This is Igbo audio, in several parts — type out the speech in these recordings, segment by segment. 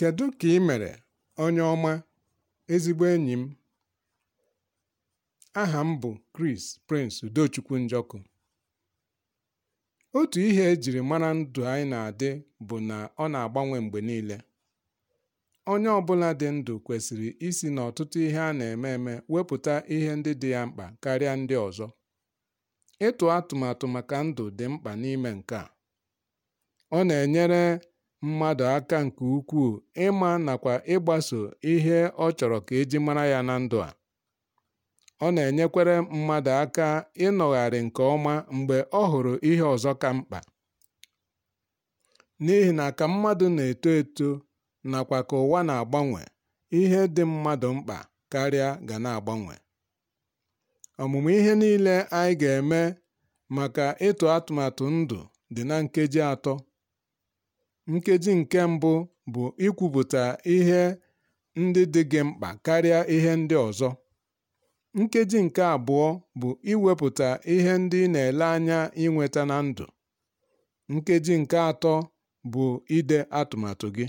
Kedu ka ị mere, onye ọma, ezigbo enyi m? Aha m bụ Kris Prince Udochukwu Njọkụ. Otu ihe e mara ndụ anyị na-adị bụ na ọ na-agbanwe mgbe niile. Onye ọbụla dị ndụ kwesịrị isi n'ọtụtụ ihe a na-eme eme wepụta ihe ndị dị ya mkpa karịa ndị ọzọ. Ịtụ atụmatụ maka ndụ dị mkpa n'ime nke a. Ọ na-enyere mmadụ aka nke ukwuu ịma nakwa ịgbaso ihe ọ chọrọ ka eji mara ya na ndụ a. Ọ na enyekwere mmadụ aka ịnọgharị nke ọma mgbe ọ hụrụ ihe ọzọ ka mkpa. N'ihi na ka mmadụ na-eto eto nakwa ka ụwa na-agbanwe, ihe dị mmadụ mkpa karịa ga na-agbanwe. Ọmụmụ ihe niile anyị ga-eme maka ịtụ atụmatụ ndụ dị na nkeji atọ. Nkeji nke mbụ bụ ikwupụta ihe ndị dị gị mkpa karịa ihe ndị ọzọ. Nkeji nke abụọ bụ iwepụta ihe ndị ị na-ele anya inweta na ndụ. Nkeji nke atọ bụ ide atụmatụ gị.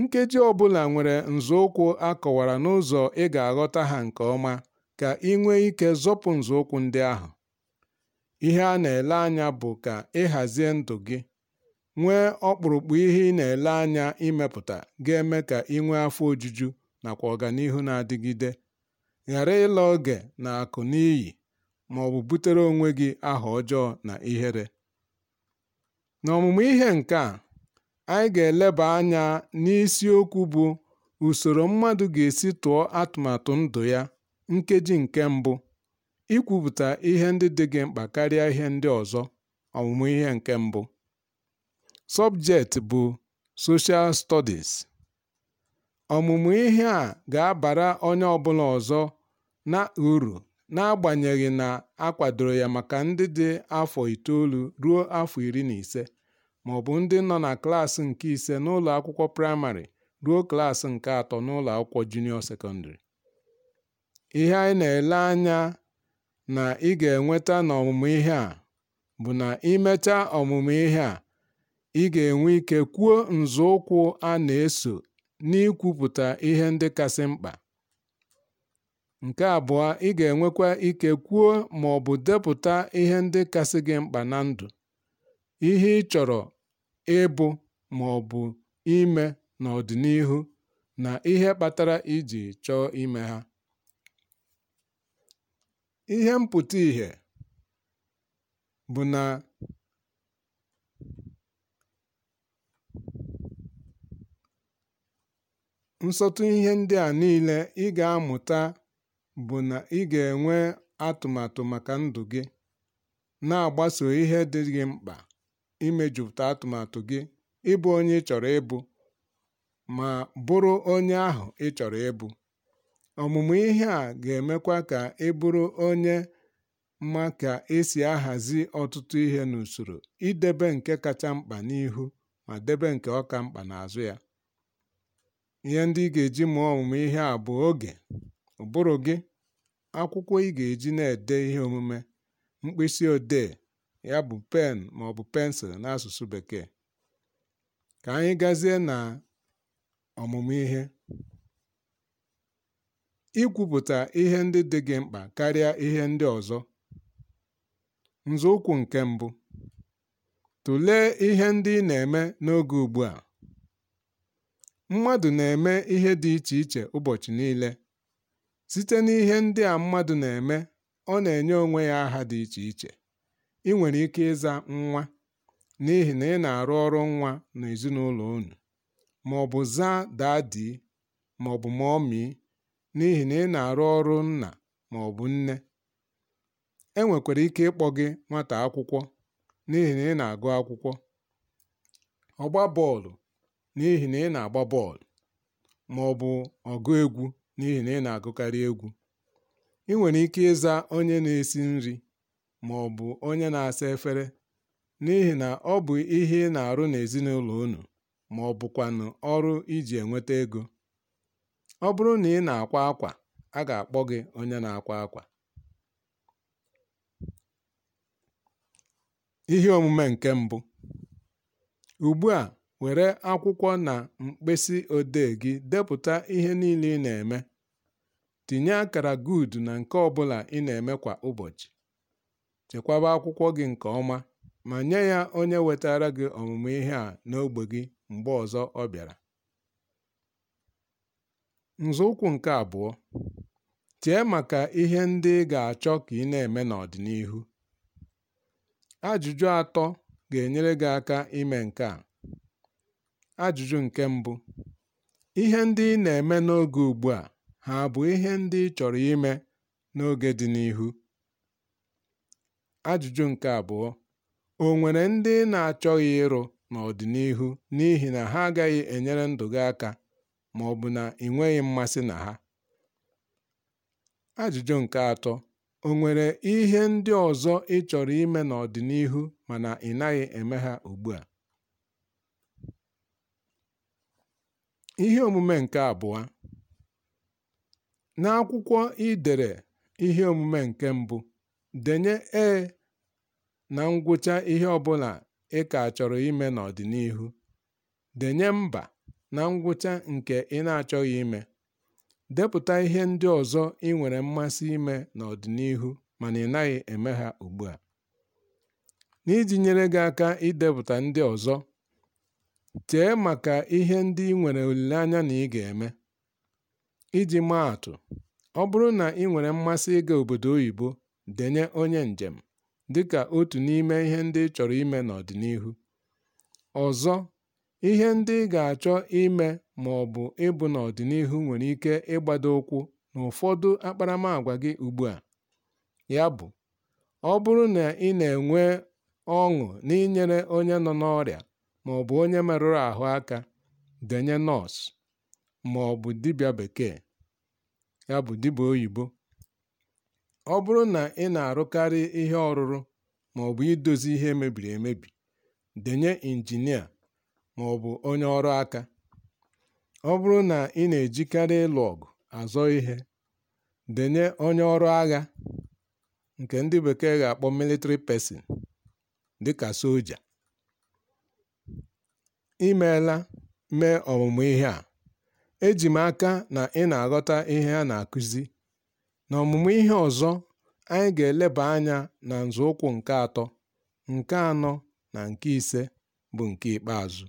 Nkeji ọ bụla nwere nzọụkwụ a kọwara n'ụzọ ị ga-aghọta ha nke ọma ka ị nwee ike zọpụ nzọụkwụ ndị ahụ. Ihe a na-ele anya bụ ka ị ndụ gị. nwee ọkpụrụkpụ ihe ị na-ele anya imepụta ga-eme ka ị nwee afọ ojuju nakwa ọganihu na-adịgide. Ghara ịla oge na akụ n'iyi bụ butere onwe gị aha ọjọọ na ihere. N'ọmụmụ ihe nke a, anyị ga-eleba anya n'isiokwu bụ usoro mmadụ ga-esi tụọ atụmatụ ndụ ya (nkeji nke mbụ), ikwupụta ihe ndị dị gị mkpa karịa ihe ndị ọzọ (ọmụmụ ihe nke mbụ). Subject bụ "Social Studies", ọmụmụ ihe a ga-abara onye ọbụla ọzọ na uru n'agbanyeghị na a kwadoro ya maka ndị dị afọ itoolu ruo afọ iri na ise, maọbụ ndị nọ na klaasị nke ise n'ụlọ akwụkwọ praịmarị ruo klaasị nke atọ n'ụlọ akwụkwọ junịọ sekọndịrị. Ihe anyị na-ele anya na ị ga-enweta n'ọmụmụ ihe a bụ na imecha ọmụmụ ihe a, ị ga-enwe ike kwuo nzọụkwụ a na-eso n'ikwupụta ihe ndị kasị mkpa. Nke abụọ, ị ga-enwekwa ike kwuo ma ọ bụ depụta ihe ndị kasị gị mkpa na ndụ, ihe ị chọrọ ịbụ ma ọ bụ ime n'ọdịnihu na ihe kpatara iji chọọ ime ha. Ihe mpụta ìhè bụ na Nsọtụ ihe ndị a niile ị ga-amụta bụ na ị ga-enwe atụmatụ maka ndụ gị, na-agbaso ihe dị gị mkpa, imejupụta atụmatụ gị, ịbụ onye ị chọrọ ịbụ, ma bụrụ onye ahụ ị chọrọ ịbụ. Ọmụmụ ihe a ga-emekwa ka ị bụrụ onye ma ka esi ahazi ọtụtụ ihe n'usoro, idebe nke kacha mkpa n'ihu ma debe nke ọka mkpa n'azụ ya. Ihe ndị ị ga-eji mụọ ọmụmụ ihe a bụ oge, ụbụrụ gị, akwụkwọ ị ga-eji na-ede ihe omume, mkpịsịodee ya bụ pen maọbụ pensụl n'asụsụ Bekee. Ka anyị gazie na ọmụmụ ihe. Ikwupụta ihe ndị dị gị mkpa karịa ihe ndị ọzọ. Nzọụkwụ nke mbụ: tụlee ihe ndị ị na-eme n'oge ugbu a. Mmadụ na-eme ihe dị iche iche ụbọchị niile. Site n'ihe ndị a mmadụ na-eme, ọ na-enye onwe ya aha dị iche iche. Ị nwere ike ịza "nwa" n'ihi na ị na-arụ ọrụ nwa n'ezinaụlọ unu, maọbụ zaa "Daddy" maọbụ "Mummy" n'ihi na ị na-arụ ọrụ nna maọbụ nne. E nwekwara ike ịkpọ gị nwata akwụkwọ n'ihi na ị na-agụ akwụkwọ. Ọgba bọọlụ n'ihi na ị na-agba bọọlụ ma ọ bụ ọgụ egwu n'ihi na ị na-agụkarị egwu. ị nwere ike ịza onye na-esi nri ma bụ onye na-asa efere n'ihi na ọ bụ ihe ị nà-àrụ n'èzinụlọ̀ unu na ọrụ iji enweta ego Ọ bụrụ na ị na-akwa akwa a ga-akpọ gị onye na-akwa akwa. Ihe omume nke mbụ: ugbu a. were akwụkwọ na mkpịsị odee gị depụta ihe niile ị na-eme. Tinye akara gud na nke ọ bụla ị na-eme kwa ụbọchị. Chekwaba akwụkwọ gị nke ọma ma nye ya onye wetaara gị ọmụmụ ihe a n'ogbe gị mgbe ọzọ ọ bịara. Nzọụkwụ nke abụọ, chee maka ihe ndị ị ga-achọ ka ị na-eme n'ọdịnihu. Ajụjụ atọ ga-enyere gị aka ime nke a. Ajụjụ nke mbụ: Ihe ndị ị na-eme n'oge ugbu a ha bụ ihe ndị ị chọrọ ime n'oge dị n'ihu? Ajụjụ nke abụọ: O nwere ndị ị na-achọghị ịrụ n'ọdịnihu n'ihi na ha agaghị enyere ndụ gị aka ma ọ bụ na ị nweghị mmasị na ha? Ajụjụ nke atọ: O nwere ihe ndị ọzọ ị chọrọ ime n'ọdịnihu mana ị naghị eme ha ugbu a? Ihe omume nke abụọ n'akwụkwọ i dere omume nke mbụ, denye "e" na ngwụcha ihe ọ bụla ị ka chọrọ ime n'ọdịnihu. Denye "mba" na ngwụcha nke ị na-achọghị ime. Depụta ihe ndị ọzọ ị nwere mmasị ime n'ọdịnihu mana ị naghị eme ha ugbu a, n'iji nyere gị aka idepụta ndị ọzọ. Chee maka ihe ndị ị nwere olileanya na ị ga-eme. Iji maa atụ, ọ bụrụ na ị nwere mmasị ịga obodo oyibo, denye "onye njem" dịka otu n'ime ihe ndị ị chọrọ ime n'ọdịnihu. Ọzọ, ihe ndị ị ga-achọ ime ma ọ bụ ịbụ n'ọdịnihu nwere ike ịgbado ụkwụ ụfọdụ akparamàgwa gị ugbu a. bụ ọ bụrụ na ị na-enwe ọṅụ n'inyere onye nọ n'ọrịa, maọbụ onye merụrụ ahụ aka denye nọọsụ maọbụ dibịa bekee ya bụ dibịa oyibo ọ bụrụ na ị na-arụkarị ihe ọrụrụ maọbụ idozi ihe mebiri emebi denye injinia bụ onye ọrụ aka ọ bụrụ na ị na-ejikarị ịlụ ọgụ azọ ihe denye onye ọrụ agha nke ndị bekee ga-akpọ military person dịka soja I mee ọmụmụ ihe a, eji m aka na ị na-aghọta ihe a na-akụzi. na ọmụmụ ihe ọzọ, anyị ga-eleba anya na nzọụkwụ nke atọ, nke anọ na nke ise bụ nke ikpeazụ.